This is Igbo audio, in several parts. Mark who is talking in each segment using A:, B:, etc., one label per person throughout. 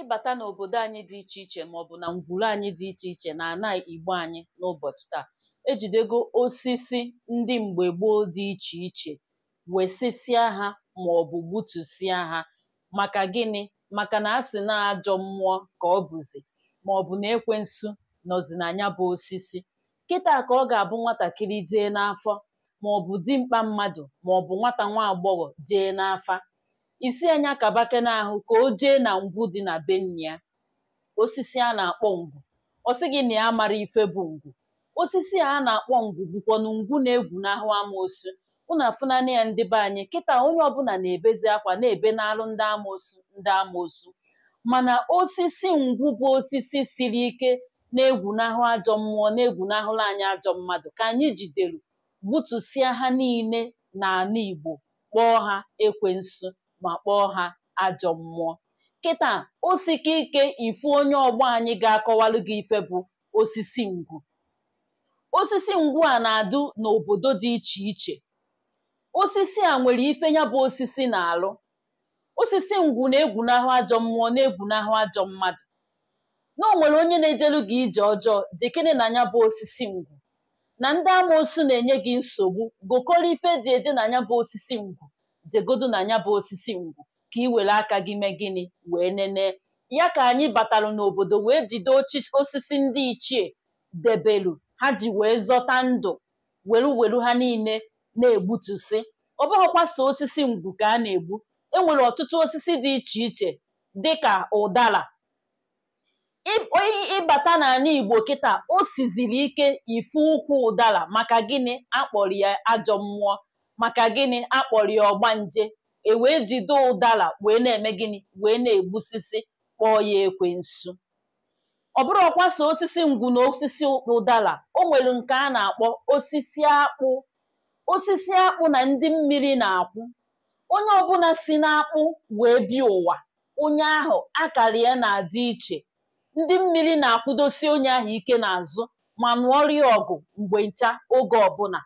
A: ịbata n'obodo anyị dị iche iche maọbụ na ngwuru anyị dị iche iche na ana igbo anyị n'ụbọchị taa ejidego osisi ndị mgbe gboo dị iche iche wesịsịa ha maọbụ gbutusịa ha maka gịnị maka na a sị na ajọ mmụọ ka ọ bụzi maọbụ na ekwensu nọzi na bụ osisi kịta ka ọ ga-abụ nwatakịrị jee n'afọ maọbụ dimkpa mmadụ maọbụ nwata nwa agbọghọ jee n'afa isi anya kabake n'ahụ ka o jee na ngwu dị na be ya osisi a na-akpọ ngwu ọ gị na ya mara ife bụ ngwu osisi a na-akpọ ngwu na ngwu na-egwu n'ahụ amoosu ụnụ afụnanị ya ndị be anyị kịta onye ọbụla na-ebezi akwa na-ebe n'alụ ndị amoosu ndị amoosu mana osisi ngwu bụ osisi siri ike na-egwu n'ahụ ajọ mmụọ na-egwu n'ahụrụ anyị ajọ mmadụ ka anyị jidere gbutusịa ha niile n'ala Igbo kpọọ ha ekwensu ma kpọọ ha ajọ mmụọ kịta o sike ike ifu onye ọgbọ anyị ga-akọwalụ gị ife bụ osisi ngwu osisi ngwu a na-adụ n'obodo dị iche iche osisi a nwere ife ya bụ osisi na-alụ osisi ngwu na-egwunahụ ajọ mmụọ na-egwunahụ ajọ mmadụ na o nwere onye na-ejelu gị ije ọjọọ jekene na ya bụ osisi ngwu na ndị amaosu na-enye gị nsogbu gokọrọ ife dị eje na ya bụ osisi ngwu jegodu na anya bụ osisi ngwu ka ị were aka gị mee gịnị wee nenee. ya ka anyị batalụ n'obodo wee jide osisi ndị ichie debelu ha ji wee zọta ndụ welu welu ha niile na-egbutusi ọ bụghịkwa osisi ngwu ka a na-egbu enwere ọtụtụ osisi dị iche iche dịka ụdara ịbata n'ala Igbo kịta o siziri ike ife ụkwụ ụdara maka gịnị akpọrọ ya ajọ mmụọ maka gịnị akpọrọ ya ọgbanje e wee jide ụdara wee na-eme gịnị wee na-egbusisi kpọọ ya nsu ọ bụrụ ọkwa osisi ngwu na osisi ụdara o nwere nke a na-akpọ osisi akpụ osisi akpụ na ndị mmiri na-akwụ onye ọbụla si n'akpụ wee bịa ụwa onye ahụ akara ya na-adị iche ndị mmiri na-akwụdosi onye ahụ ike n'azụ ma nụọrịa ọgụ mgbe ncha oge ọbụla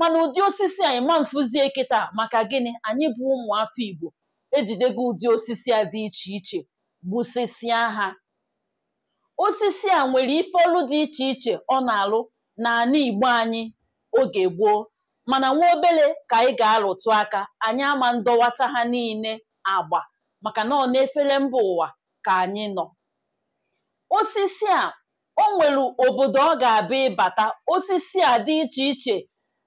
A: mana ụdị osisi anyị ma mfụzie kịta maka gịnị anyị bụ ụmụafọ Igbo ejidego ụdị osisi a dị iche iche gbusisia ha osisi a nwere ife ọlụ dị iche iche ọ na-alụ n'ala Igbo anyị oge gboo mana nwa obele ka anyị ga-alụtụ aka anyị ama ndọwacha ha niile agba maka na ọ na-efere mba ụwa ka anyị nọ osisi a o nwere obodo ọ ga-abịa ịbata osisi a dị iche iche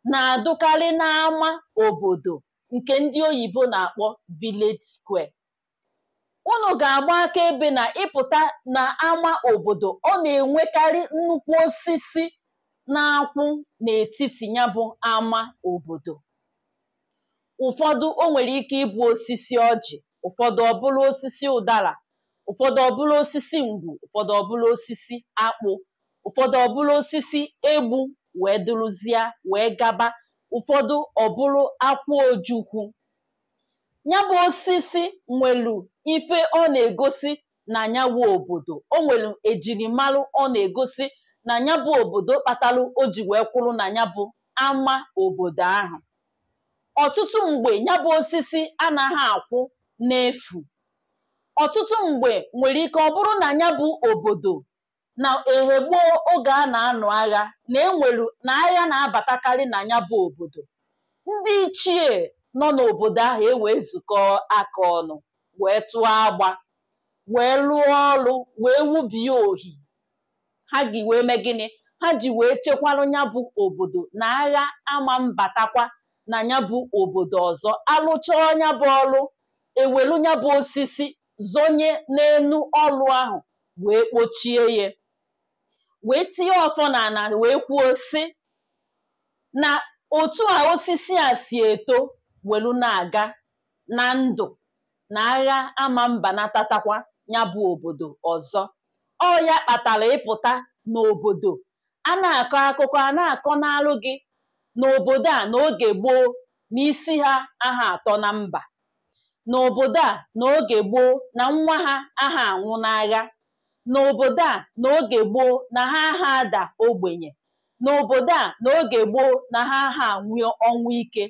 A: na-adụkarị n'ama obodo nke ndị oyibo na-akpọ village square. ụnụ ga-agba akaebe na ịpụta n'ámá obodo ọ na-enwekarị nnukwu osisi na-akwụ n'etiti ya bụ ama obodo. Ụfọdụ o nwere ike ịbụ osisi ọjị, ụfọdụ ọbụla osisi ụdara, ụfọdụ ọbụla osisi ngwu ụfọdụ ọbụla osisi akpụ, ụfọdụ ọbụla osisi egbu wee dụrụzie wee gaba ụfọdụ ọbụrụ akwụ ojukwu Nyabu osisi nwelu ife ọ na-egosi na nyabu obodo o nwere ejirimalụ ọ na-egosi na nyabụ obodo kpatalụ o ji wee kwụrụ na nyabụ ama obodo ahụ ọtụtụ mgbe nyabụ osisi anaghị akwụ n'efu ọtụtụ mgbe nwere ike ọ bụrụ na nyabụ obodo na ehe gboo oge a na-anụ agha na enwelu na agha na-abatakarị na ya bụ obodo ndị ichie nọ n'obodo ahụ ewee zukọ aka ọnụ wee tụọ agba wee lụọ ọrụ wee wubie ohi ha gị wee mee gịnị ha ji wee chekwarụ ya bụ obodo na agha ama mbatakwa na ya bụ obodo ọzọ alụcha ọnya bụ ọrụ ewelu ya bụ osisi zonye n'enu ọrụ ahụ wee kpochie ya wee tinye ọfọ n'ala wee kwuo si na otu a osisi a si eto welu na-aga na ndụ na agha ama mba natatakwa ya bụ obodo ọzọ ọ ya kpatara ịpụta n'obodo a na-akọ akụkọ a na-akọ n'alụ gị n'obodo a n'oge gboo na isi ha aha atọ na mba n'obodo a n'oge gboo na nwa ha aha anwụ n'agha n'obodo a n'oge gboo na ha aha ada ogbenye n'obodo a n'oge gboo na ha aha nwee ọnwụ ike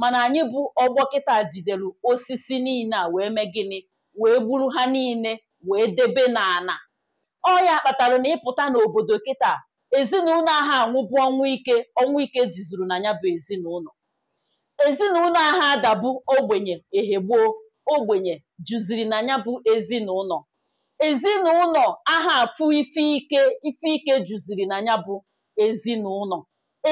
A: mana anyị bụ ọgbọ kịta jidere osisi niile a wee mee gịnị wee gburu ha niile wee debe n'ana ọ ya kpatara na ịpụta n'obodo kịta ezinụlọ ahụ anwụbụ ọnwụ ike ọnwụ ike jizuru na ya bụ ezinụlọ ezinụlọ ahụ ogbenye ehegbuo ogbenye juziri na ya bụ ezinụlọ ezinụlọ aha afụ ife ike ife ike juziri na ya bụ ezinụlọ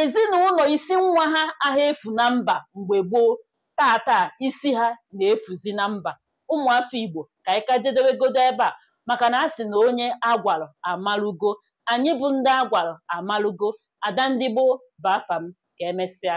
A: ezinụlọ isi nwa ha aha efu na mba mgbe gboo tata isi ha na-efuzi na mba ụmụafọ Igbo ka ị ka jedebegodo ebe a maka na a sị na onye agwarọ amalụgo anyị bụ ndị agwarọ amalụgo ada ndị gboo bụ ka emesịa